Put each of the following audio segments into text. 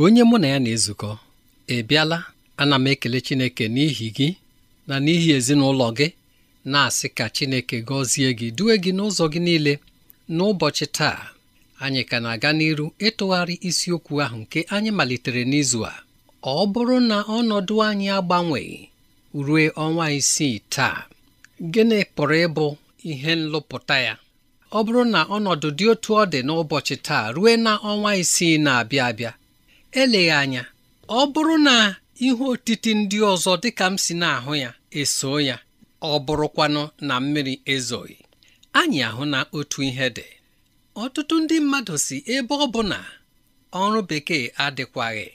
onye mụ na ya na-ezukọ ị bịala ana m ekele Chineke n'ihi gị na n'ihi ezinụlọ gị na-asị ka Chineke gọzie gị due gị n'ụzọ gị niile n'ụbọchị taa anyị ka na-aga n'iru ịtụgharị isiokwu ahụ nke anyị malitere n'izu a ọ bụrụ na ọnọdụ anyị agbanweghị ruo ọnwa isii taa gịnị pụrụ ịbụ ihe nlụpụta ya ọ bụrụ na ọnọdụ dị otu ọ dị n'ụbọchị taa ruo na ọnwa isii na-abịa abịa eleghị anya ọ bụrụ na ihe otiti ndị ọzọ dịka m si na-ahụ ya eso ya ọ bụrụkwanụ na mmiri ezoghị anyị ahụ na otu ihe dị ọtụtụ ndị mmadụ si ebe ọ bụ na ọrụ bekee adịkwaghị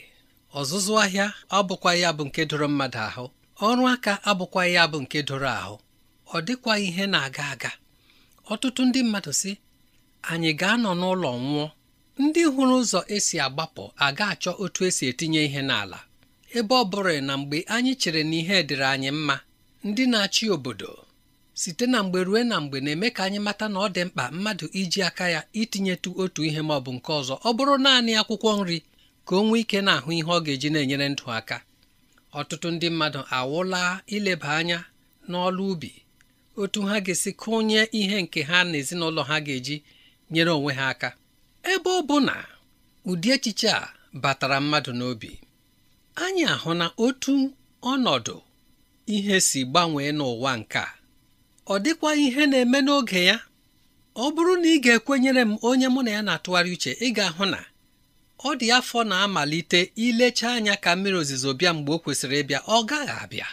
ọzụzụ ahịa abụkwa ya bụ nke doro mmadụ ahụ ọrụ aka abụkwa ya bụ nke doro ahụ ọ dịkwa ihe na-aga aga ọtụtụ ndị mmadụ si anyị ga-anọ n'ụlọ nwụọ ndị hụrụ ụzọ esi agbapụ aga achọ otu esi etinye ihe n'ala ebe ọ bụrụ na mgbe anyị chere na ihe dịrị anyị mma ndị na-achị obodo site na mgbe ruo na mgbe na-eme ka anyị mata na ọ dị mkpa mmadụ iji aka ya itinyetu otu ihe ma ọ bụ nke ọzọ ọ bụrụ naanị akwụkwọ nri ka o nwee ike na-ahụ ihe ọ ga-eji na-enyere ndụ aka ọtụtụ ndị mmadụ awụla ileba anya n'ọlụ ubi otu ha ga-esi kụnye ihe nke ha na ezinụlọ ha ga-eji nyere onwe ha aka ebe ọ bụ na ụdị echiche a batara mmadụ n'obi anyị ahụ na otu ọnọdụ ihe si gbanwee n'ụwa nke a ọ dịkwa ihe na-eme n'oge ya ọ bụrụ na ị ga-ekwenyere m onye mụ na ya na-atụgharị uche ị ga-ahụ na ọ dị afọ na-amalite ilecha anya ka mmiri ozizo bịa mgbe ọ kwesịrị ịbịa ọ gaghị abịa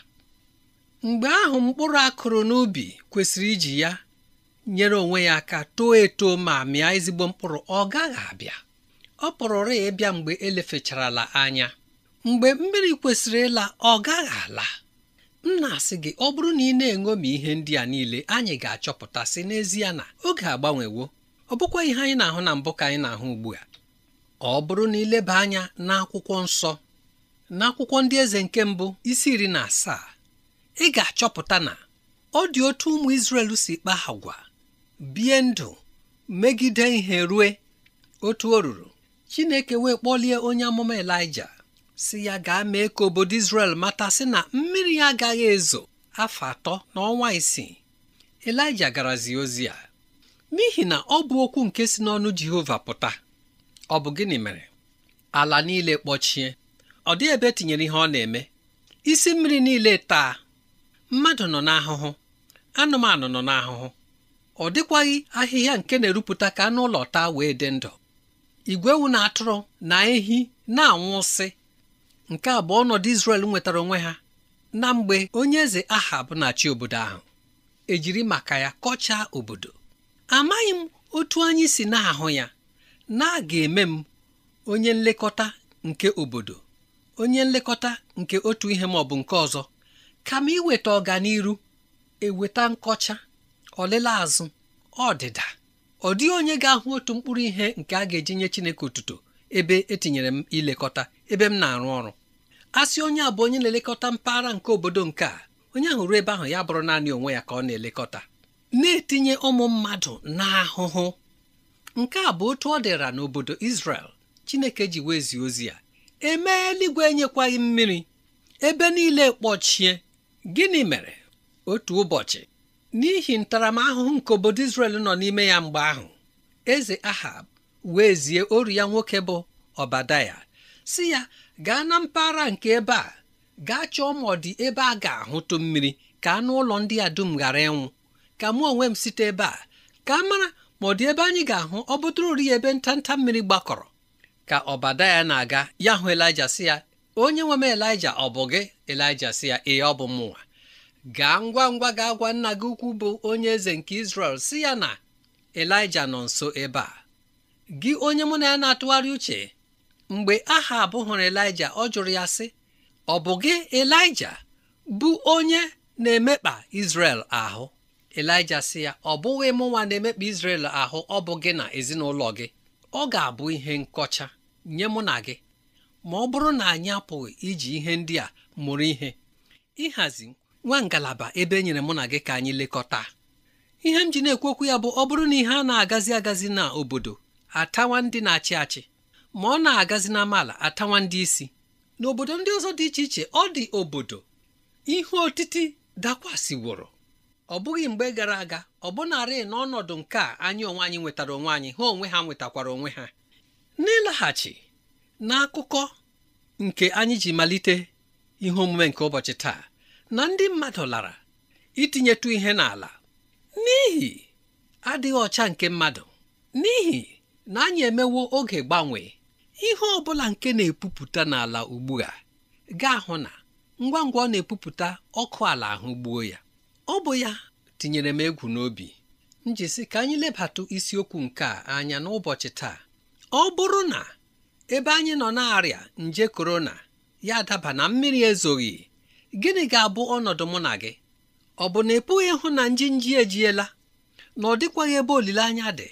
mgbe ahụ mkpụrụ akụrụ n'ubi kwesịrị iji ya nyere onwe ya aka too eto ma mịa ezigbo mkpụrụ ọ gaghị abịa ọ pụrụrụ ya ịbịa mgbe elefecharala anya mgbe mmiri kwesịrị ịla ọ gaghị ala m na-asị gị ọ bụrụ na ị na-eṅomi ihe ndị a niile anyị ga-achọpụta sị n'ezie na oge agbanwewo ọ bụkwa ihe anyị na-ahụ na mbụ ka anyị na-ahụ ugbu a ọ bụrụ na ileba anya n'akwụkwọ nsọ n'akwụkwọ ndị eze nke mbụ isi iri na asaa ị ga-achọpụta na ọ dị otu ụmụ Izrel si kpaa agwa bie ndụ megide ihe rue otu o ruru chineke wee kpọlie onye amụma elija si ya gaa mee ka obodo Israel mata sị na mmiri ya agaghị ezo afọ atọ na ọnwa isii elija garazie ozi a n'ihi na ọ bụ okwu nke si n'ọnụ jehova pụta ọ bụ gịnị mere ala niile kpọchie ọ dị ebe e tinyere ihe ọ na-eme isi mmiri niile taa mmadụ nọ n'ahụhụ anụmanụ nọ n'ahụhụ ọ dịkwaghị ahịhịa nke na-erupụta ka anụ ụlọ taa wee dị ndụ igwe ewu na atụrụ na ehi na-anwụsị nke abụọ ọnọdụ Izrel nwetara onwe ha na mgbe onye eze Ahab na-achị obodo ahụ ejiri maka ya kọchaa obodo amaghị m otu anyị si na-ahụ ya na-aga eme m onye nlekọta nke obodo onye nlekọta nke otu ihe ma ọ bụ nke ọzọ kama iweta ọganiru eweta nkọcha ọlele azụ ọdịda ọ dịghị onye ga-ahụ otu mkpụrụ ihe nke a ga-eji nye Chineke otuto ebe etinyere m ilekọta ebe m na-arụ ọrụ sị onye a bụ onye na-elekọta mpaghara nke obodo nke a onye ahụ ruo ebe ahụ ya bụrụ naanị onwe ya ka ọ na-elekọta na-etinye ụmụ mmadụ n'ahụhụ nke a bụ otu ọ dịra n'obodo Israel Chineke ji wezie ozi ya emee eluigwe enyekwaghị mmiri ebe niile kpọchie gịnị mere otu ụbọchị n'ihi ntaramahụhụ nke obodo Israel nọ n'ime ya mgbe ahụ eze Ahab wee zie oru ya nwoke bụ Ọbadaya si ya gaa na mpaghara nke ebe a gaa chọọ ma ọ dị ebe a ga-ahụtụ mmiri ka anụ ụlọ ndị a dum ghara ịnwụ ka mụ onwe m site ebe a ka a mara ma ọ dị ebe anyị ga-ahụ ọ bụtụrụri ya ebe ntanta mmiri gbakọrọ ka ọbadaya na-aga ya hụ elija si ya onye nwe m elija ọ bụ gị elija si ya ee ọ bụ mụnwa gaa ngwa ngwa gaa gwa nna gị ukwu bụ onye eze nke Israel si ya na Elija nọ nso ebe a gị onye mụ na ya na-atụgharị uche mgbe aha abụ hụrụ Elija ọ jụrụ ya sị ọ bụ gị Elija bụ onye na-emekpa Israel ahụ Elija sị ya ọ bụghị mụ nwa na-emekpa Israel ahụ ọ bụ gị na ezinụlọ gị ọ ga-abụ ihe nkọcha nye mụ na gị ma ọ bụrụ na anyị apụghị iji ihe ndị a mụrụ ihe ịhazi nwa ngalaba ebe e nyere mụ na gị ka anyị lekọta ihe m ji na-ekwu okwu ya bụ ọ bụrụ na ihe a na-agazi agazi na obodo atawa ndị na-achị achị ma ọ na-agazi na amaala atawa ndị isi n'obodo ndị ọzọ dị iche iche ọ dị obodo ihe otiti dakwasịworo ọ bụghị mgbe gara aga ọ bụnarị n'ọnọdụ nke a anyị onwe anyị nwetara onwe anyị ha onwe ha nwetakwara onwe ha n'ịlaghachi n'akụkọ nke anyị ji malite ihe omume nke ụbọchị taa na ndị mmadụ lara itinyetụ ihe n'ala n'ihi adịghị ọcha nke mmadụ n'ihi na anyị emewo oge gbanwee ihe ọ bụla nke na-epupụta n'ala ugbu a ga-ahụ na ngwa ngwa ọ na-epupụta ọkụ ala ahụ gbuo ya ọ bụ ya tinyere m egwu n'obi njisi ka anyị lebatụ isiokwu nke a anya n'ụbọchị taa ọ bụrụ na ebe anyị nọ na-arịa nje korona ya daba na mmiri ezoghị gịnị ga-abụ ọnọdụ mụ na gị ọ bụ na ị pụghị ịhụ na nji nji ejiela na ọ dịkwaghị ebe olileanya dị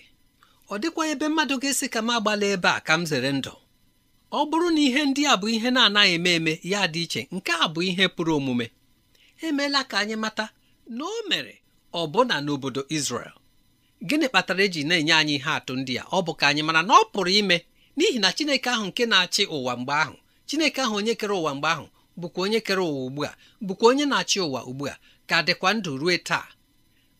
ọ dịkwaghị ebe mmadụ ga-esi ka m agbala ebe a ka m zere ndụ ọ bụrụ na ihe ndị a bụ ihe na-anaghị eme eme ya dị iche nke a bụ ihe pụrụ omume emeela ka anyị mata na o mere ọbụna n'obodo Israel gịnị kpatara eji na-enye anyị ihe atụ ndị a ọ bụ ka anyị mara na ọ pụrụ ime n'ihi na Chineke ahụ nke na-achị ụwa mgbe ahụ Chineke ahụ onye kere ụwa mgbe ahụ bụkwa onye kere ụwa ugbu a bụkwa onye na-achị ụwa ugbu a ka dịkwa ndụ rue taa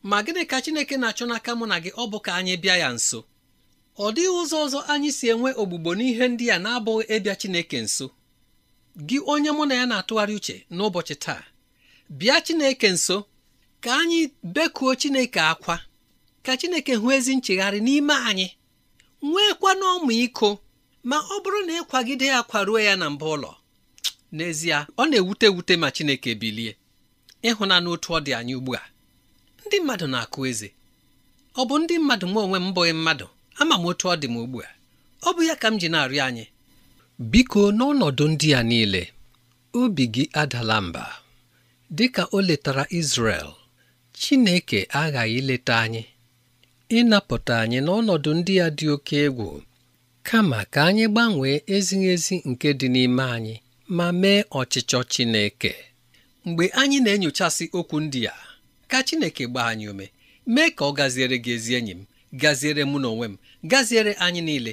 ma gịnị ka Chineke na-achọ n'aka mụ na gị ọ bụ ka anyị bịa ya nso ọ dịghị ụzọ ọzọ anyị si enwe ogbugbo n'ihe ndị a na-abụghị ịbịa Chineke nso gị onye mụ na ya na-atụgharị uche n'ụbọchị taa bịa Chineke nso ka anyị bekuo Chineke akwa ka Chineke hụ ezi nchegharị n'ime anyị nwekwa iko, ma ọ bụrụ na ịkwagide ya kwaruo ya na mba ụlọ n'ezie ọ na-ewute ewute ma Chineke bilie ịhụnanụ otu ọ dị anyị ugbu a ndị mmadụ na-akụ eze ọ bụ ndị mmadụ m onwe m bụghị mmadụ ama m otu ọ dị m ugbu a ọ bụ ya ka m ji na-arịọ anyị biko n'ọnọdụ ndị a niile obi gị adala mba dị ka o letara Izrel Chineke aghaghị ileta anyị ịnapụta anyị n'ọnọdụ ndị a dị oke egwu kama ka anyị gbanwee ezighị ezi nke dị n'ime anyị ma mee ọchịchọ Chineke mgbe anyị na-enyochasị okwu ndị a ka Chineke gbaa anyị ume mee ka ọ gaziere gị ezi enyi m gaziere mụ na onwe m gaziere anyị niile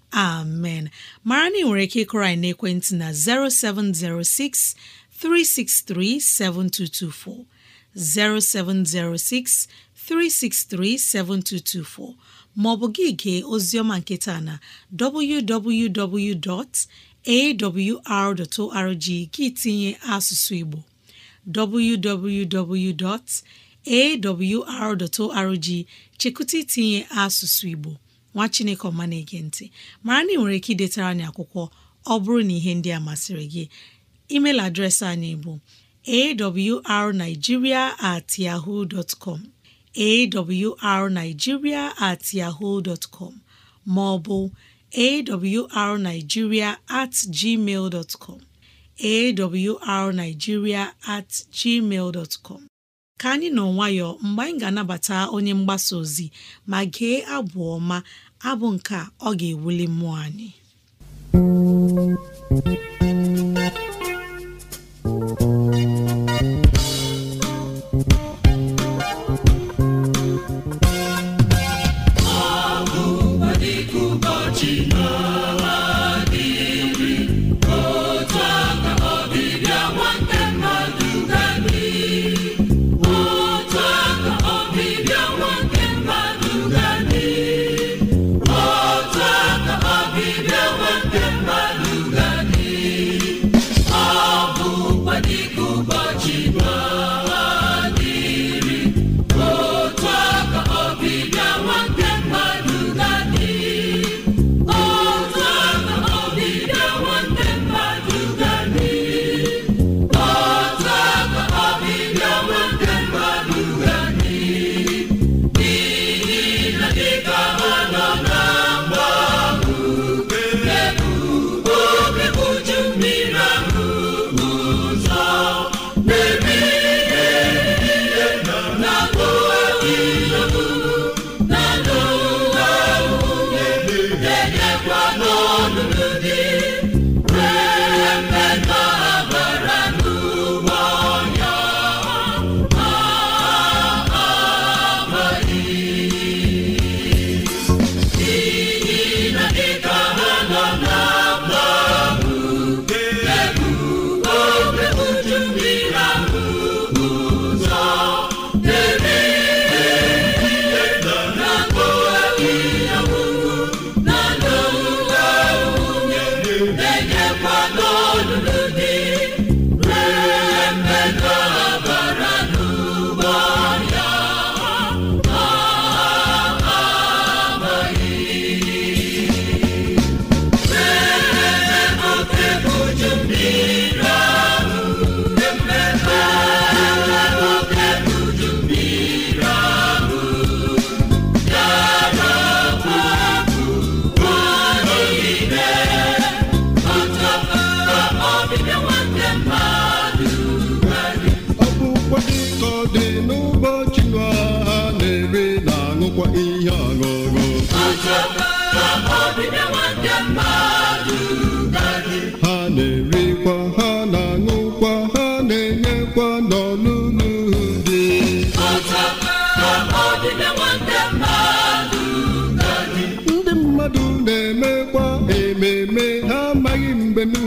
amen mara na nwere ike ịkụrọ na n'ekwentị na 0706 363 7224 0706 363 7224 maọbụ gị gee oziọma nketa na www.awr.org gị tinye asụsụ Igbo www.awr.org chekụta itinye asụsụ Igbo nwa chineke ọma na-ege ntị mara na ị nwere ike idetara anyị akwụkwọ ọ bụrụ na ihe ndị a masịrị gị email adreesị anyị bụ arigiria at at com ma ọ bụ at com at gmail ka anyị nọ nwayọ mgbe anyị ga-anabata onye mgbasa ozi ma gee abụ ọma abụ nke ọ ga-ewuli mmụọ anyị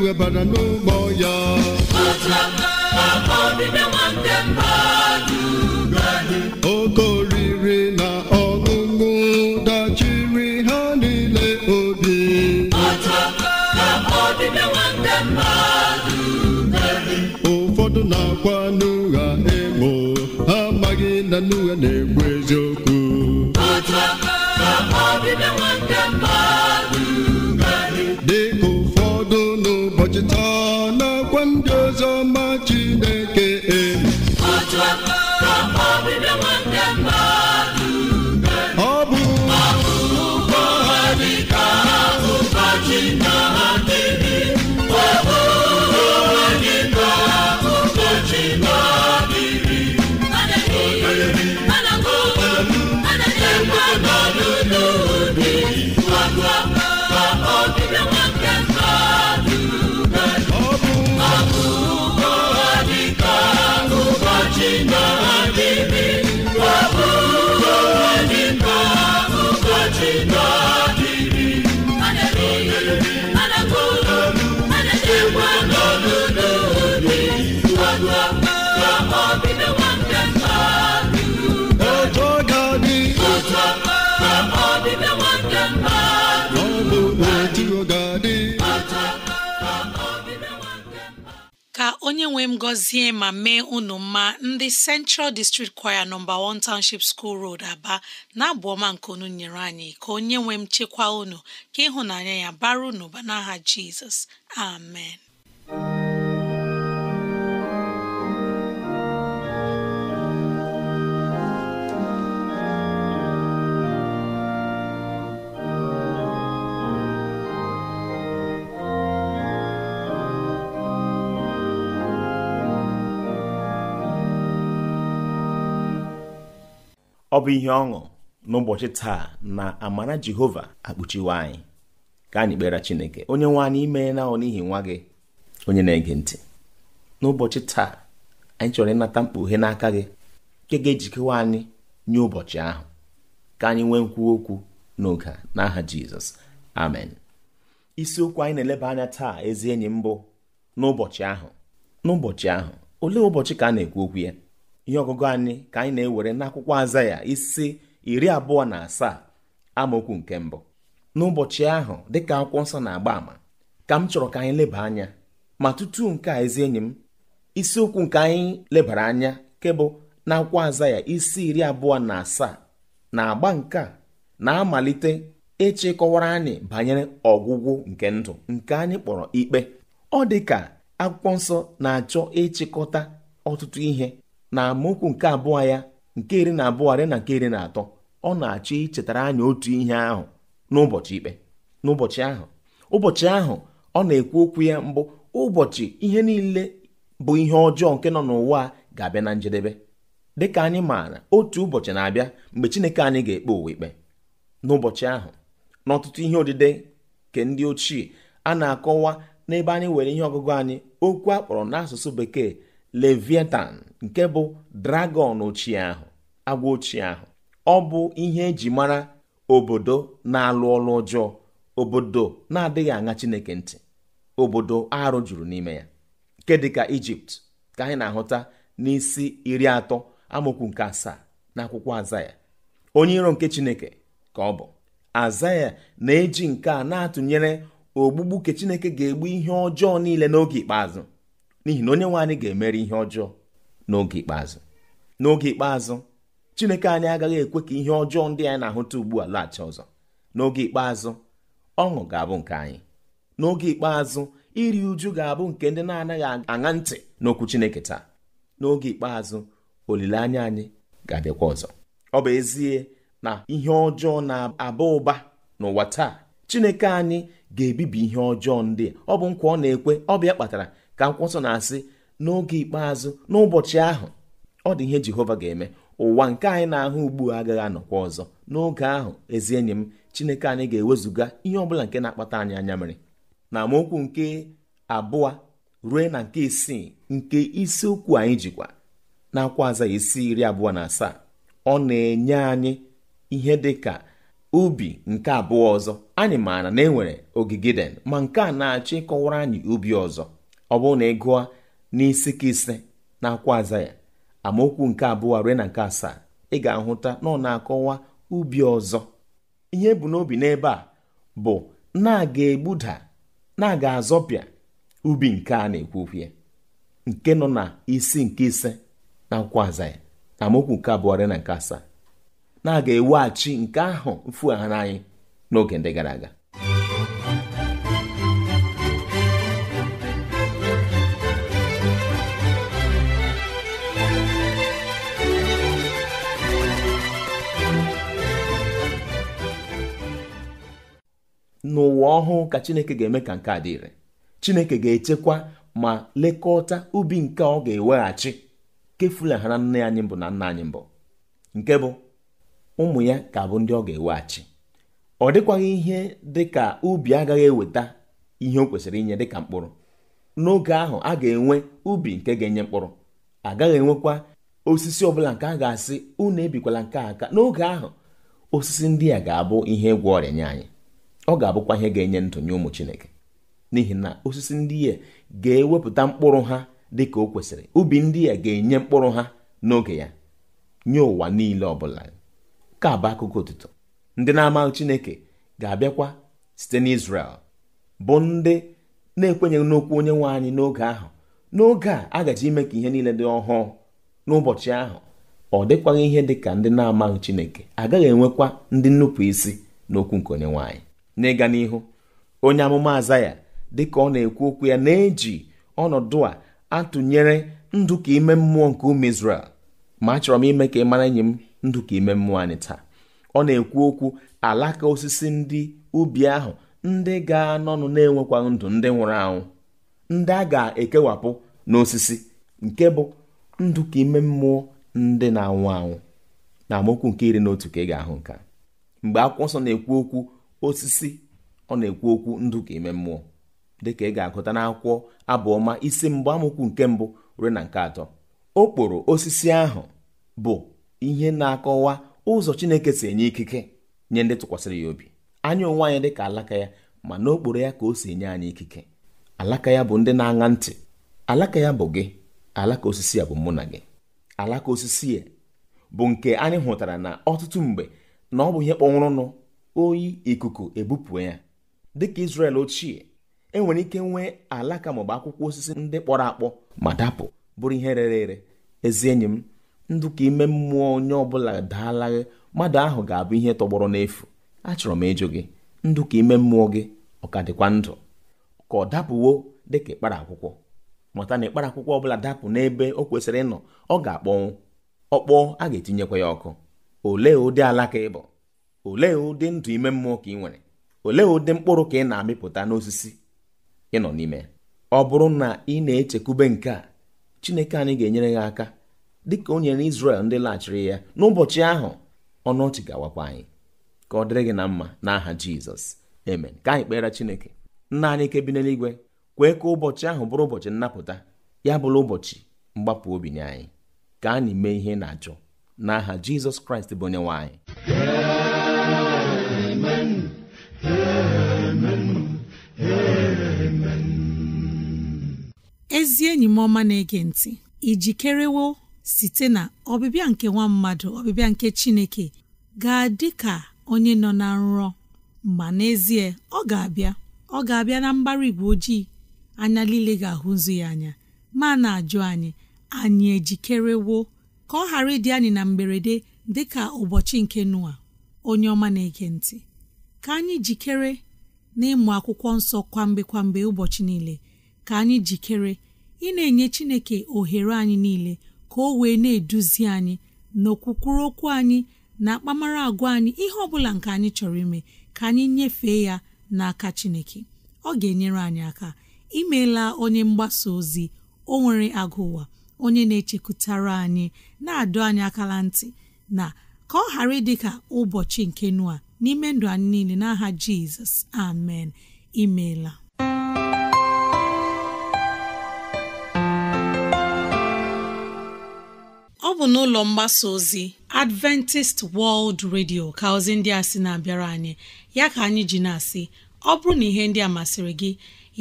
webara n'ụgbọ ya oke oriri na ọṅụṅụ dachiri ha n'ile obi ụfọdụ na-akwa n'ụgha emo ha amaghị na n'ụgha na ekwu eziokwu dịka na n'akwa ndị ọzọ ma Chineke onye nwe m gọzie ma mee unu mma ndị Central District Choir nọmba 1 Township School Road Aba na-abụ ọma nke unu nyere anyị ka onye nwe m chekwa unu ka ịhụnanya ya bara unu n'aha Jizọs amen ọ bụ ihe ọṅụ n'ụbọchị taa na amara jehova akpuchiwe anyị ka anyị kpere chineke onye nwe anyị imeela ọ n'ihi nwa gị onye na-ege ntị n'ụbọchị taa anyị chọrọ ịnata mkpughe n'aka gị nke ga-ejikewa anyị nye ụbọchị ahụ ka anyị nwee nkwu okwu n'oge n'aha jizọs amen isiokwu anyị na-eleba anya taa ezi enyi mbụ n'ụbọchị ahụ n'ụbọchị ahụ olee ụbọchị ka a na-ekwu okwu ya ihe ọgụgụ anyị ka anyị na-ewere n'akwụkwọ aza ya isi iri abụọ na asaa amaokwu nke mbụ n'ụbọchị ahụ dịka akwụkwọ nsọ na-agba àmà ka m chọrọ ka anyị leba anya ma tutu nke a ezi enyi m isiokwu nke anyị lebara anya nke bụ na akwụkwọ aza ya isi iri abụọ na asaa na agba nke a na-amalite ịchịkọwara anyị banyere ọgwụgwụ nke ndụ nke anyị kpọrọ ikpe ọ dị ka akwụkwọ nsọ na-achọ ịchịkọta ọtụtụ ihe na amaokwu nke abụọ ya nke iri na abụọ rịa na nke iri na atọ ọ na-achọ ichetara anyị otu ihe ahụ n'ụbọchị ikpe n'ụbọchị ahụ ụbọchị ahụ ọ na-ekwu okwu ya mbụ ụbọchị ihe niile bụ ihe ọjọọ nke nọ n'ụwa ga-abịa na njedebe dịka anyị maara otu ụbọchị na-abịa mgbe Chineke anyị ga-ekpe ụwa ikpe n'ụbọchị ahụ n'ọtụtụ ihe odide nke ndị ochie a na-akọwa n'ebe anyị were ihe ọgụgụ anyị okwu akpọrọ n'asụsụ bekee leviatan. nke bụ dragọn ochie ahụ agwa ochie ahụ ọ bụ ihe eji mara obodo na-alụ ọlụ ọjọọ obodo na-adịghị aṅa chineke ntị obodo arụ juru n'ime ya nke dịka ijipt ka anyị na-ahụta n'isi iri atọ amaokwu nke asaa n'akwụkwọ azaya onye iro nke chineke ka ọ bụ azaya na-eji nke a na-atụnyere ogbugbu nke chineke ga-egbu ihe ọjọọ niile n'oge ikpeazụ n'ihi na onye nwe anyị ga-emere ihe ọjọọ n'oge ikpeazụ n'oge ikpeazụ chineke anyị agaghị ekwe ka ihe ọjọọ ndị anyị na-ahụta ugbu a laghachi ọzọ n'oge ikpeazụ ọṅụ ga-abụ nke anyị n'oge ikpeazụ iri uju ga-abụ nke ndị na-anaghị aṅa ntị n'okwu chineke taa n'oge ikpeazụ olileanya anyị ga-abịakwa ọzọ ọ bụ ezie na ihe ọjọọ na-aba ụba n'ụwa taa chineke anyị ga-ebibi ihe ọjọọ ndị ọ bụ nkwa ọ na-ekwe ọ bịa kpatara ka nkwụsọ na-asị n'oge ikpeazụ n'ụbọchị ahụ ọ dị ihe jehova ga-eme ụwa nke anyị na-ahụ ugbu agaghị anọkwa ọzọ n'oge ahụ ezi enyi m chineke anyị ga-ewezụga ihe ọbụla nke na-akpata anyị anya mere na amaokwu nke abụọ ruo na nke isii nke isiokwu anyị jikwa na-akwa aza isi iri abụọ na asaa ọ na-enye anyị ihe dị ka ubi nke abụọ ọzọ anyị maara na enwere ogige den ma nke a na-achọ ịkọwara anyị ubi ọzọ ọ bụrụ na ị gụọ n'isi ka ise na akwa aza ya amaokwu nke abụọ rue na nke asaa ị ga-ahụta na ọ na-akọwa ubi ọzọ ihe bụ n'obi n'ebe a bụ na-aga egbuda na-aga azọpịa ubi nke a na-ekwu nke nọ na isi nke ise na akwụkwọ aza ya na amaokwu nke abụọ na nke asaa na-aga eweghachi nke ahụ mfu ha n'anyị n'oge ndị gara aga n'ụwa ọhụụ ka chineke ga-eme ka nke a dị ire chineke ga-echekwa ma lekọta ubi nke ọ ga-eweghachi na nne anyị mbụ na nna anyị mbụ nke bụ ụmụ ya ka bụ ndị ọ ga-eweghachi ọ dịkwaghị ihe dị ka ubi agaghị eweta ihe o kwesịrị inye dịka mkpụrụ n'oge ahụ a ga-enwe ubi nke ga-enye mkpụrụ agaghị enwekwa osisi ọbụla nke a ga-asị unu ebikwala nke aka n'oge ahụ osisi ndị a ga-abụ ihe ịgwọ ọrịa nye anyị ọ ga-abụkwa ihe ga-enye ndụ nye ụmụ chineke n'ihi na osisi ndị ya ga-ewepụta mkpụrụ ha dị ka o kwesịrị ubi ndị ya ga-enye mkpụrụ ha n'oge ya nye ụwa niile ọ bụla ka bụ akụkọ otuto ndị na-amaghị chineke ga-abịakwa site n'Izrel bụ ndị na-ekwenyeghị n'okwu onye nwe anyị n'oge ahụ n'oge a agaji ime ka ihe niile dị ọhụụ n'ụbọchị ahụ ọ dịkwaghị ihe dị ka ndị na-amaghị chineke agaghị enwekwa ndị nnupụ isi n'okwu nke onye nwaanyị n'ịga n'ihu onye amụma Azaya dịka ọ na-ekwu okwu ya na-eji ọnọdụ a atụnyere ndụ ka ime mmụọ nke ụmụ Izrel ma achọrọ m ime ka ị mara enyi m ndụ ka ime mmụọ anyị taa ọ na-ekwu okwu alaka osisi ndị ubi ahụ ndị ga-anọnụ na-enwekwa ndụ ndị nwụrụ anwụ ndị a ga-ekewapụ n'osisi nke bụ ndụ ka ime mmụọ ndị na-anwụ anwụ na amaokwu nke iri na otu ka ị ga-ahụ nka mgbe akwụkwọ nsọ na-ekwu okwu osisi ọ na-ekwu okwu ndụ ka ime mmụọ dịka ị ga-agụta n'akwụkwọ abụọma isi mbụ amụkwu nke mbụ ruo na nke atọ okporo osisi ahụ bụ ihe na-akọwa ụzọ Chineke si enye ikike nye ndị tụkwasịrị ya obi anya onwe anyị dịka alaka ya ma n'okporo ya ka o si enye anyị ikike alaka ya bụ ndị na-aṅa ntị alaka ya bụ gị alaka osisi ya bụ mụ na gị alaka osisi ya bụ nke anyị hụtara na ọtụtụ mgbe na ọ bụ ihe kpọnwụrụnụ oyi ikuku ebupụ ya dịka Israel ochie enwere ike nwee alaka maọbụ akwụkwọ osisi ndị kpọrọ akpọ ma dapụ bụrụ ihe rere ere ezi enyi m ndụ ka ime mmụọ onye ọbụla daalaghị mmadụ ahụ ga-abụ ihe tọgbọrọ n'efu achọrọ m ịjụ gị ndụ ka ime mmụọ gị ọ ka dịkwa ndụ ka ọ dapụwo dịka ịkpara akwụkwọ mụta na ịkpara akwụkwọ ọbụla dapụ n'ebe o kwesịrị ịnọ ọ ga-akpọnwụ ọkpọọ a ga-etinyekwa ya ọkụ olee ụdị alaka ịbụ olee ụdị ndụ ime mmụọ ka ị nwere olee ụdị mkpụrụ ka ị na-amịpụta n'osisi ị nọ n'ime ọ bụrụ na ị na-echekwube nke a chineke anyị ga-enyere ya aka dịka o nyere Izrel ndị laghachiri ya n'ụbọchị ahụ ọnụ ọchị ga-awakwa anyị ka ọ dịrị gị na mma n'aha Jizọs eme ka anyị kpere Chineke nna anyị nke bi n'eluigwe kwee ka ụbọchị ahụ bụrụ ụbọchị nnapụta ya bụrụ ụbọchị mgbapụ obi nye anyị ka anyị mee ihe na-achọ n'aha Jizọs Kraịst bụ onye nwe anyị ezi enyi m ọma na-ege ntị ijikerewo site na ọbịbịa nke nwa mmadụ ọbịbịa nke Chineke ga-adị ka onye nọ na nrọ ma n'ezie ọ ga-abịa ọ ga-abịa na mbara igwe ojii anya niile ga-ahụzu ya anya ma na-ajụ anyị anyị ejikerewo ka ọ ghara ịdị anyị na mberede dị ka ụbọchị nke Noa onye ọma na-ege ntị ka anyị jikere n'ịmụ akwụkwọ nsọ kwamgbe kwamgbe ụbọchị niile ka anyị jikere ị na-enye Chineke ohere anyị niile ka o wee na-eduzi anyị n'okwukwuru okwu anyị na akpamara agwa anyị ihe ọ bụla nke anyị chọrọ ime ka anyị nyefee ya n'aka Chineke ọ ga-enyere anyị aka imeela onye mgbasa ozi o nwere onye na-echekwutara anyị na adụ anyị akala ntị na ka ọ ghara ịdị ụbọchị nke nua n'ime ndụ anyị niile n'aha Jizọs amen imeela bụ n'ụlọ mgbasa ozi Adventist World Radio ka ozi ndị a sị na-abịara anyị ya ka anyị ji na-asị ọ bụrụ na ihe ndị a masịrị gị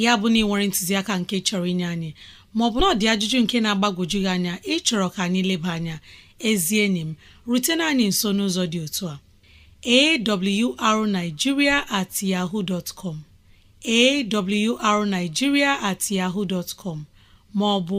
ya bụ na ị nwere ntụziaka nke chọrọ inye anyị maọbụ na ọ ajụjụ nke na agbagoju gị anya ịchọrọ ka anyị leba anya ezi enyi m rutena anyị nso n'ụzọ dị otu a arigiria at yahoo dot com awrnigeria at yaho dtcom maọbụ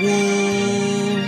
woo!